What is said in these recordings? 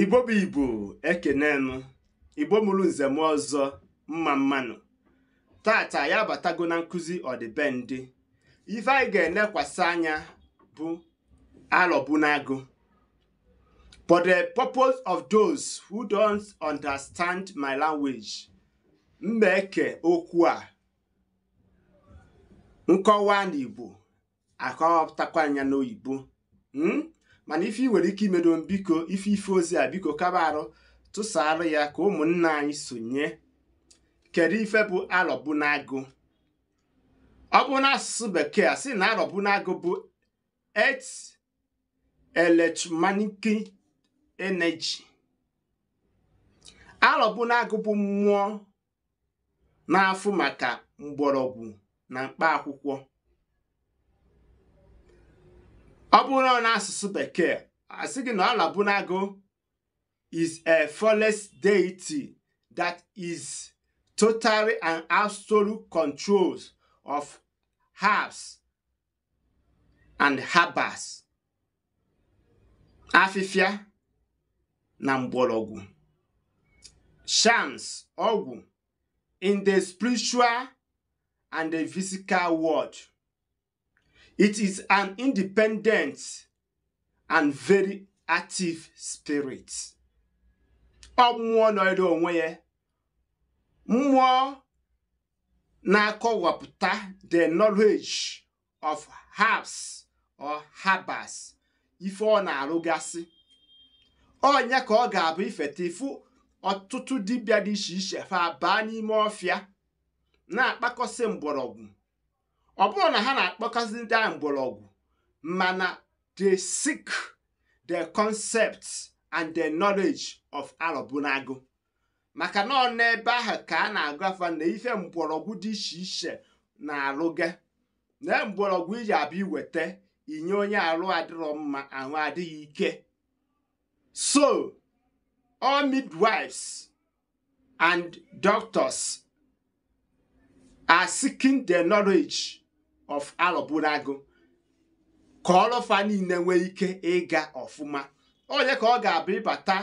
igbo bụ ibu ekenenụ igbo mụrụ nzem ọzọ mma mmanụ tata ya batago na nkụzi ọdịbendị ife anyị ga-elekwasị anya bụ alọbunagụ for the purpose of those who don't understand my language mmeke okwu a nkọwa n'igbo akọpụtakwa anya n'oyibo hmm? mana ife ị nwere ike imedo biko ife ife ozi a biko kaba arụ tụsaarụ ya ka ụmụnna anyị sonye kedu ife bụ arọbunagụ ọ bụ asụsụ bekee a sị na arọbunagụ bụ et electromagnetic energy arọbunagụ bụ mmụọ na-afụ maka mgbọrọgwụ na mkpaakwụkwọ. ọ bụrụ na n'asụsụ bekee asị gị na ọlabunago is a flawless deity that is totally and absolute controls of herbs and herbers afịfịa na mgbọrọgwụ shams ọgwụ in the spiritual and the physical world It is an independent and very active spirit. Ọ mmụọ nọrọ onwe ya, mmụọ na-akọwapụta the knowledge of herbs or herbers ife ọ na-arụgasị. Onye ka ọ ga-abụ ifeta ifu ọtụtụ dibia dị iche iche fa baa n'ime ọfịa na-akpakọsị mgbọrọgwụ ọ bụrụ na ha na-akpọkasị ndị a mgbọrọgwụ mana they seek the concepts and the knowledge of arọbụnago maka na ọ n'ebe ahụ ka a na-agụ afa na ife mgbọrọgwụ dị iche iche na-alụga na e mgbọrọgwụ iji abịa iweta inye onye arụ adịrọ mma ahụ adịghị ike so all midwives and doctors are seeking the knowledge of alọbụlago ka ọlọfa niile nwee ike ịga ọfụma onye ka ọ ga-abụ ịbata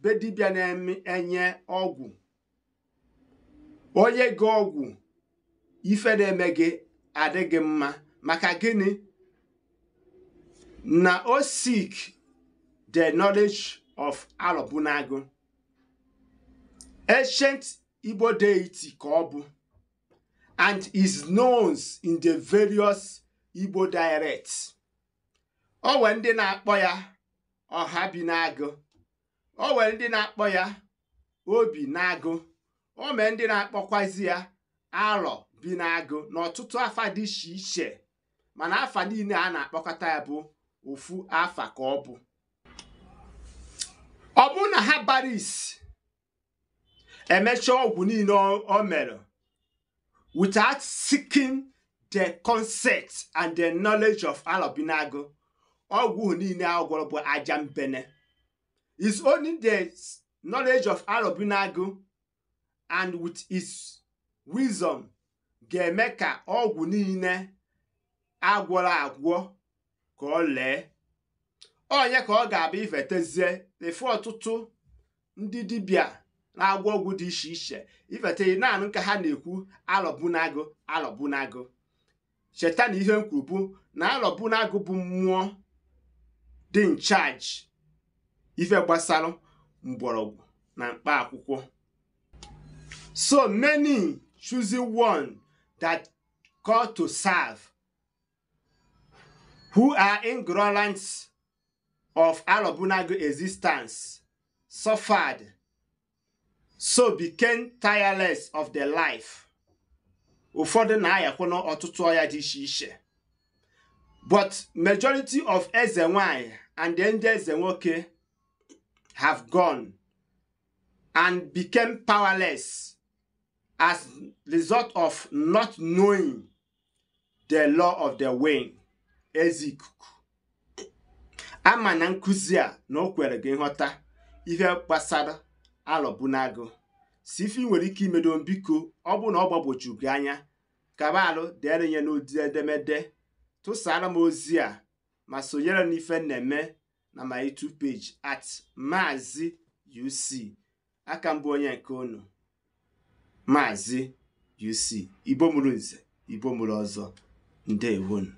be dibịa na-enye ọgwụ onye gị ọgwụ ife na-eme gị adịghị mma maka gịnị na o sik the knowledge of alọbụnago ancient igbo deity ka ọ bụ and is known in the various Igbo dialects. O nwere ndị na-akpọ ya ọha bi n'agụ o ndị na-akpọ ya obi n'agụ o mee ndị na-akpọkwazi ya alọ bi n'agụ n'ọtụtụ afa dị iche iche mana afa niile a na-akpọkọta ya bụ ofu afa ka ọ bụ ọ bụ na ha bara emechaa ọgwụ niile o mere without seeking the concept and the knowledge of alobinago ọgwụ niile agwọrọ gwọrọ bụ aja mbene. is only the knowledge of alobinago and with his wisdom ga-eme ka ọgwụ niile agwọrọ agwọ ka ọ lee onye ka ọ ga-abụ ifetezie efe ọtụtụ ndị dibịa na-agwọ ọgwụ dị iche iche ifete naanị ka ha na-ekwu alobunagu alobunagu cheta na ihe m na alobunagu bụ mmụọ dị nchaji ife gbasara mgbọrọgwụ na mkpa akwụkwọ so many choosing one that call to serve who are ignorant of Alobunagu existence suffered so became tireless of their life ụfọdụ na-ayakwa n'ọtụtụ ọya dị iche iche but majority of eze nwanyị and ndị eze nwoke have gone and became powerless as result of not knowing the law of the wind ezi ikuku ama na nkụzi a na o kwere gị nghọta ihe gbasara alọbunagụ si ife nwere ike imedo biko ọ bụ na ọ gbagboju anya kaba alụ ya n'ụdị edemede tụsara m ozi a ma sonyere n'ife ife na-eme na my YouTube page at maazị UC aka mbụ onye nke unu maazị UC igbo mụrụ ọzọ ndewonu